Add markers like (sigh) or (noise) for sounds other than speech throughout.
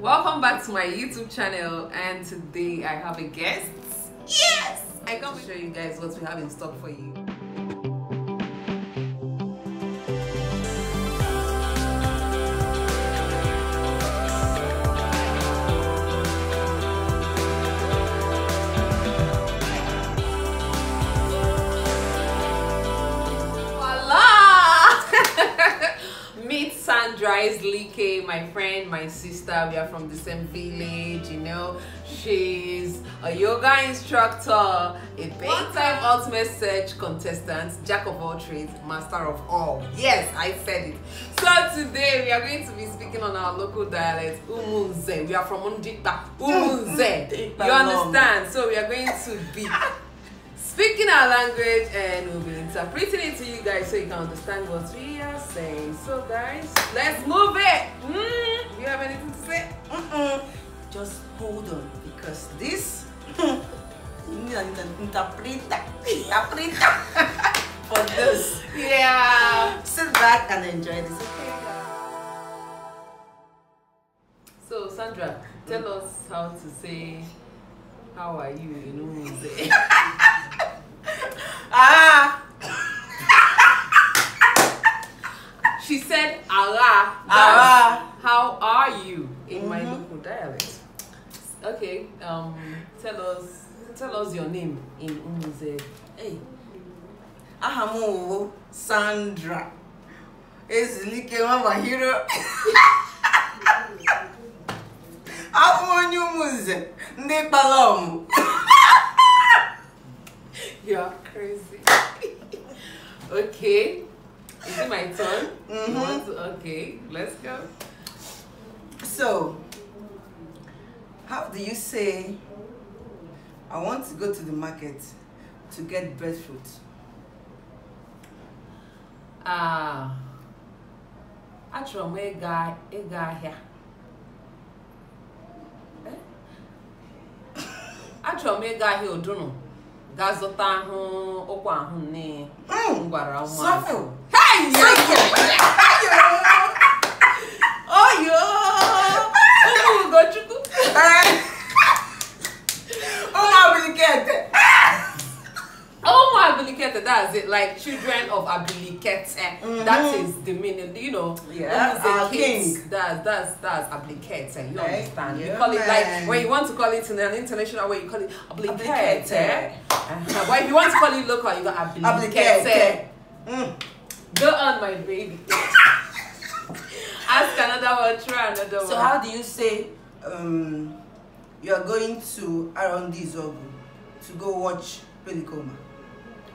Welcome back to my YouTube channel and today I have a guest. Yes! I come to show you guys what we have in stock for you. likewise, Like, my friend, my sister, we are from the same village, you know. She's a yoga instructor, a big-time ultimate search contestant, jack of all trades, master of all. Yes, I said it. So today we are going to be speaking on our local dialect, Umunze. We are from Undikpa, (laughs) Umunze. You understand? So we are going to be speaking our language and we'll be interpreting it to you guys so you can understand what we are saying. So guys, let's move it. Mm, you have anything to say? Mm -mm. Just hold on because this (laughs) you need an interpreter. Interpreter (laughs) for this. Yeah. Sit back and enjoy this. Okay. So Sandra, tell us how to say how are you in Umuze. (laughs) Ara. How are you in mm-hmm. my local dialect? Okay. Um. Tell us. Tell us your name in Umuze. Hey. Ahamu Sandra. Ezilike Mama Hero. (laughs) Abụ onye ụmụnze ndị Ne ọmụ. (laughs) You are crazy. (laughs) okay. Is it my turn? Mm -hmm. to, okay, let's go. So, how do you say, I want to go to the market to get breadfruit? Ah, uh, achọrọ m ịga ịga ahịa. Eh? (laughs) Achọrọ m ịga ahịa odunu ga zụta ahụ ụkwa ahụ nne mm. m gwara ụmụazị. that's it. Like children of Abiliket, that is the meaning. You know, yeah, our king. That, that's that's Abiliket. Eh? You understand? you call it like when you want to call it in an international way, you call it Abiliket. Eh? Uh eh. -huh. but if you want to call it local, you got Abiliket. Eh? Mm. Go on, my baby. Ask another one, try another so one. So how do you say um, you are going to R&D Zogu to go watch Pelicoma?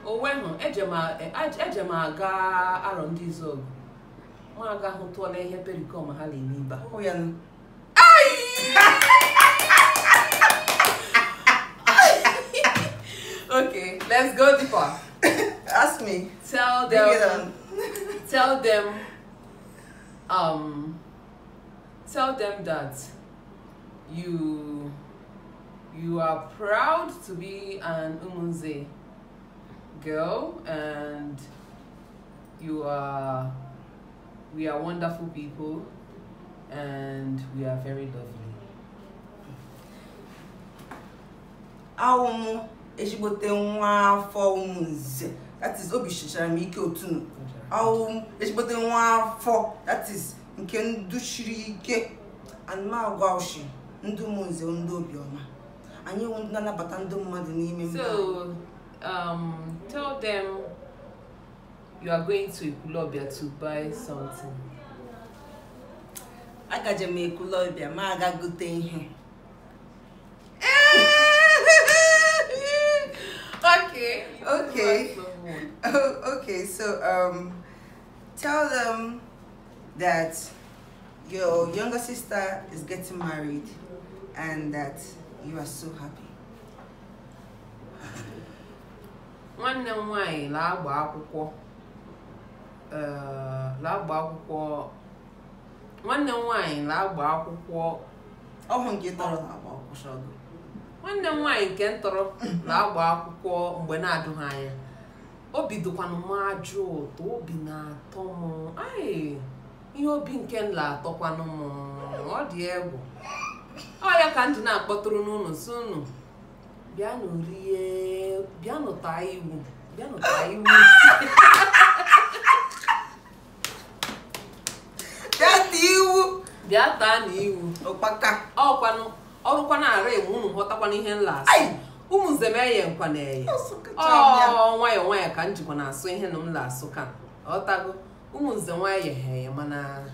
Owe hụ, eje m e, aga e R&D Zogu. Ma aga hụ tụọla ihe Pelicoma ha na-eme ibe. Ọ Okay, let's go deeper. (laughs) Ask me. Tell them. (laughs) tell them. Um. Tell them that you you are proud to be an Umunze girl and you are we are wonderful people and we are very lovely. Awumu ezigbote nwa afọ umunze. artist is obi shichara m ike otunu ọwụ echikpọta nwa afọ that is nke nduchiri ike anụmagwa ushi ndị ụmụnze ndị obiọma anyị wụ ndị na-anabata ndị mmadụ n'ime mmadụ. so um, tell them you are going to Ekwulobia to buy something. agaje m Ekwulobia ma aga gote ihe (laughs) okay okay (laughs) Oh, okay. So um, tell them that your younger sister is getting married and that you are so happy. One m nwanyị na-agba akwukwo uh, nwanne nwanyị nke ntọrọ na-agba akwụkwọ mgbe na-adụghị anya obi dịkwanụ m ajụ ụtọ obi na-atọ m anyị ihe obi nke nla atọkwanụ m ọ dị egwu ọ ya ka ndị na-akpọtụrụ n'ụlọ si unu bịanụ rie bịanụ taa iwu bịanụ taa iwu (laughs) bịa taa na iwu ọkwanụ ọrụkwa na-ara egwu ụnụ ghọtakwana ihe nla asị ụmụnzem eye nkwaneye ọ nwayọọ nwayọọ ka njikwa na-asụ ihe na m na-asụ ka ọtago ụmụnze nwanyị yeghe mana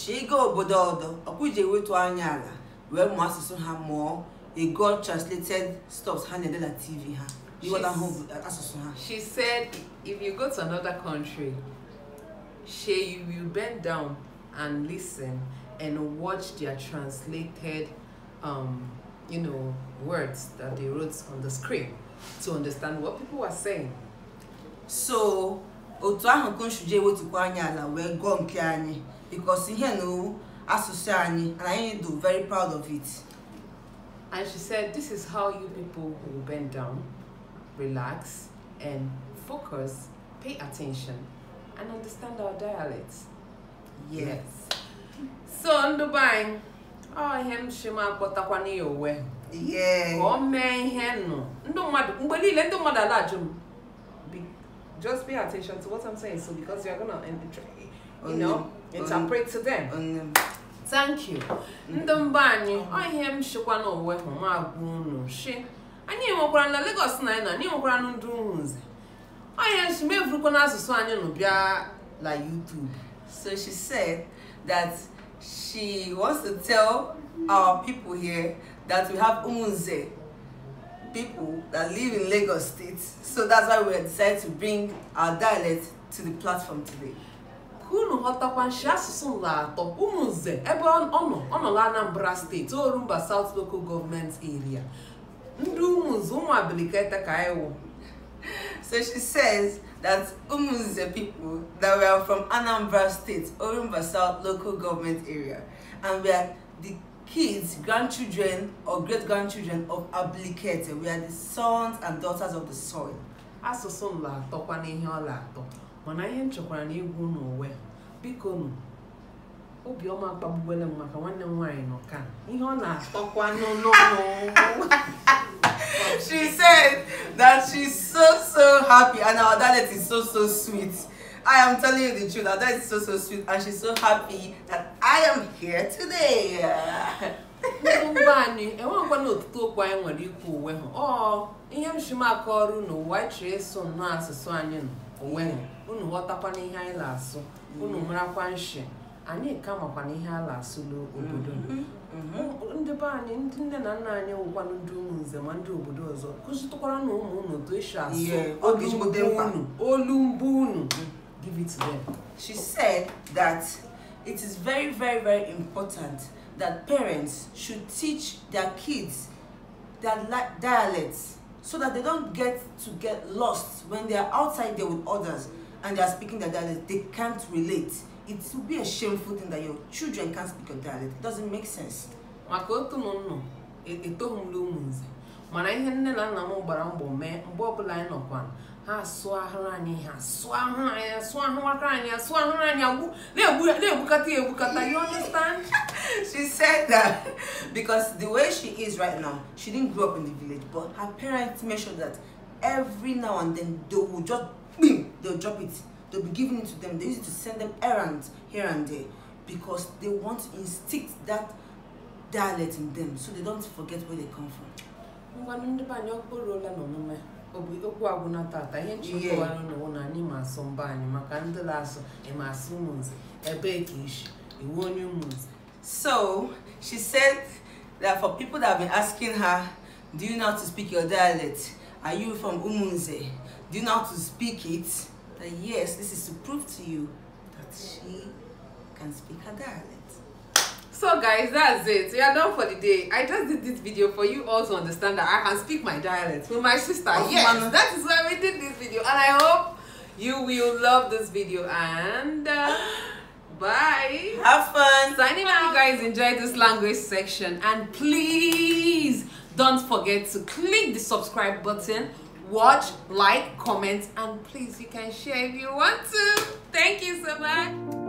shiga obodo ọdọ ọkụji ewetu anya ala wee mụọ asụsụ ha mụọ ego translated stuff ha na-ede na tv ha asụsụ ha she said if you go to another country she you will bend down and listen and watch their translated, um, you know, words that they wrote on the screen to understand what people were saying. So, otu ahụ ka nsụje ewetukwa anyị ala wee gụọ nke anyị because ihe na asụsụ anyị and anyị do very proud of it. And she said, this is how you people will bend down, relax, and focus, pay attention, and understand our dialects. yes. yes. so ndị be ọ ihe nchima akpọtakwana ya onwe ka ọ mee ihe nụ ndụ mmadụ mgbe niile ndụ mmadụ ala-ajụ just pay attention to what I'm saying so because you're gonna you know interpret to them thank you ndị mba anyị ọ ihe m shikwa n'onwe anyị enwekwara na Lagos anyị enwekwara nze ọ ihe nshi mevurukwa n'asụsụ anyị YouTube so she said that she wants to tell our people here that we have Umunze people that live in Lagos State. So that's why we decided to bring our dialect to the platform today. unu ghọtakwa nshi asụsụ nla atọ ụmụnze ebe ono nọ na anambra State, orumba south local government area Ndu ụmụnze ụmụ abilikete ka anyị wụ so she says that Umunze people that we are from Anambra State, Orumba South local government area, and we are the kids, grandchildren or great-grandchildren of Ablikete. We are the sons and daughters of the soil. Asụsụ m na-atọkwa n'ihe ọ na-atọ mana ihe m chọkwara na igwu n'onwe biko nụ obiọma kpagbuwele m maka nwanne m nwaanyị nọ ka ihe ọ na-atọkwa n'ụlọ (laughs) she said that she's so so happy and our dialect is so so sweet. I am telling you the truth, dialect is so so sweet and she's so happy that I am here today. enwe ngwa na otutu okwu anyị nwere ikwu onwe ha ihe m shi m aka ọrụ unu ụwa chere so nnọọ asụsụ anyị onwe ha unu ghọtakwana ihe anyị na-asụ unu mm-hmm. marakwa nshi anyị ka makwana ihe a na-asụ n'obodo ndị be anyị ndị nne na nna anyị wụkwanụ ndị ụmụ nze ma ndị obodo ọzọ kụzitụkwara na ụmụ unu otu esi asụ olu mbụ unu mm. give it to them she said that it is very very very important that parents should teach their kids their dialects so that they don't get to get lost when they are outside there with others and they are speaking their dialect they can't relate it would be a shameful thing that your children can't speak your dialect it doesn't make sense maka otu e, e m nọ etoghị m n'ụmụ nze mana ihe nne na nna m gbara mbọ mee mgbe ọbụla anyị nọkwa ha asụ ahụrụ anyị ha asụ ahụrụ anyị asụ ahụrụ aka anyị asụ ahụrụ anyị na-egbukata ya egbukata you understand (laughs) she said that because the way she is right now she didn't grow up in the village but her parents made sure that every now and then they will just boom, they'll drop it they'll be giving it to them they use it to send them errands here and there because they want to instill that dialect in them so they don't forget where they come from ngwanụ ndị be na tata ihe nchekọwara n'ụwa na anyị ma asụ mba anyị maka ndị na-asụ ịma asụ ụmụnze ebee ka isi iwu onye ụmụnze so she said that for people that have been asking her do you know how to speak your dialect are you from umunze do you know how to speak it that yes, this is to prove to you that she can speak her dialect. So guys, that's it. We are done for the day. I just did this video for you all to understand that I can speak my dialect with my sister. Oh, yes, that is why we did this video. And I hope you will love this video. And uh, bye. Have fun. Signing out, you guys enjoy this language section. And please don't forget to click the subscribe button watch, like, comment, and please you can share if you want to. Thank you so much.